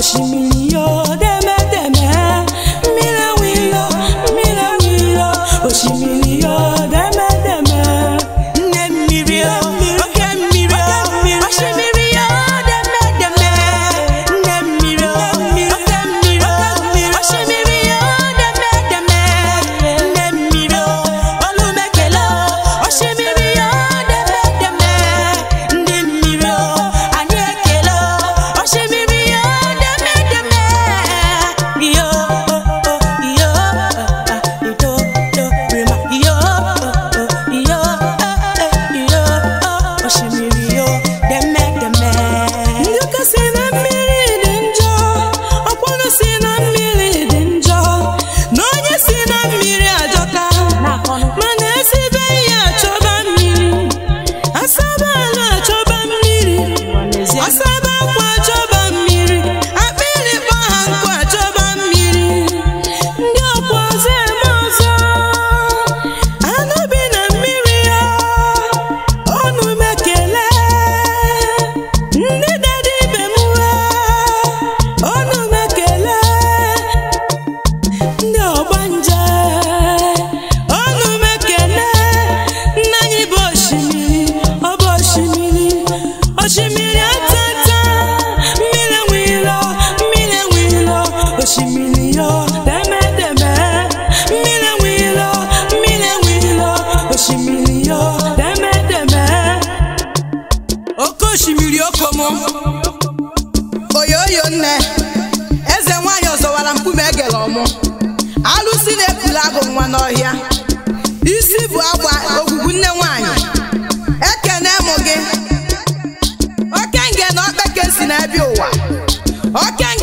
osimiri ya gbara e egere ọmụ alụsị na ekwuru agụ nwa n'ọhịa isi bụ agba ogwugwu nne nwanyị eke na mụ gị oke nge na okpeke si n'ebe ụwa oke